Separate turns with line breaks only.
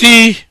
T